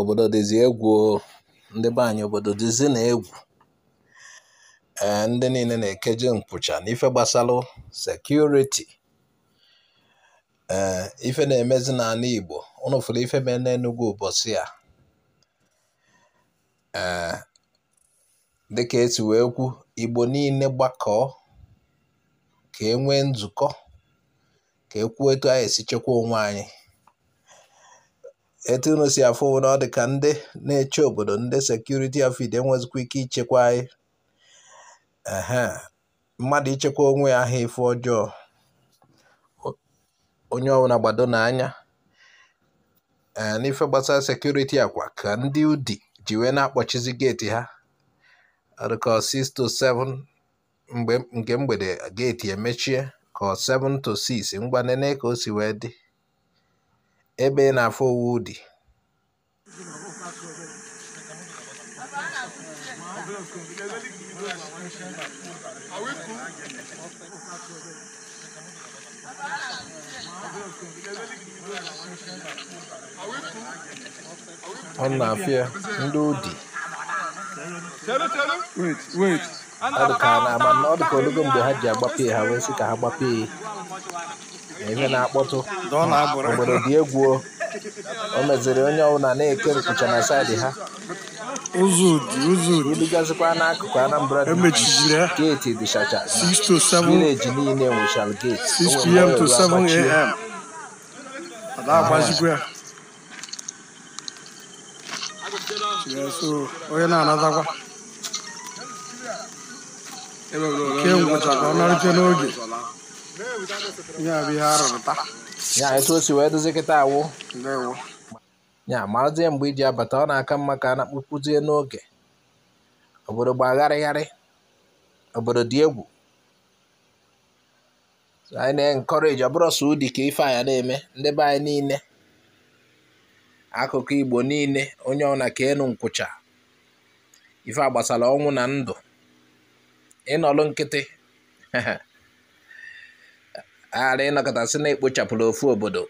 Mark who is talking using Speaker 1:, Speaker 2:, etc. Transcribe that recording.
Speaker 1: obodo dịzị egwu ndị be obodo dịzị na egwu eh, ndị niile na-ekeje nkwụcha n'ife gbasalụ sekuriti ee eh, ife na-emezi n'ala Igbo ụnụ fụrụ ife mee n'Enugwu ụbọchị a ee eh, dịka esi wee kwu Igbo niile gbakọọ ka e nwee nzukọ ka e kwuo etu anyị esi chekwa onwe anyị Etu unu si na ọ dị ka ndị na-eche obodo ndị sekuriti afid enwezikwa ike ichekwa anyị mmadụ ichekwa onwe ya aha ife ọjọọ onye ọbụla gbado n'anya ee n'ife gbasara sekuriti akwa ka ndị udi jiwe na-akpọchizi geeti ha ka 6 to 7 nke mgbede geeti emechie ka 7 to 6 ngwa ka o si wee dị ebe ị na-afụ owu dị ọ na ya ndị odi ọ dịka na ama na ọ dịka olugo mgbe ha ji agbapee ha wee sị ka ha gbapee na ihe na-akpọtụ obodo dị egwu o meziri onye ọbụla na-eke nkụcha na saịdị ha ibigazikwa n'akụkụ anambra geeti dịchacha vileji niile nwechara geeti onye na-anatakwa nke ngwụcha ka ọ narịte n'oge nya ya etu o si wee dozie kịta awụ ya marazie mgbe iji abata ọ na-aka mma ka a na-akpụkpụzie n'oge obodo gbagharịgharị obodo dị egwu anyị na-enkọreji ọbụrụ sọ ụdị ka ife anya na-eme ndị be anyị niile akụkụ igbo niile onye ọna ka enu nkwụcha ife agbasara ọnwụ na ndụ ịnọlụ nkịtị Ala ịnọkọta sị na chapụrụ ofu obodo